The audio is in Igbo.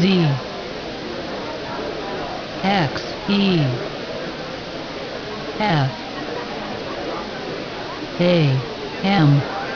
Z X E F A M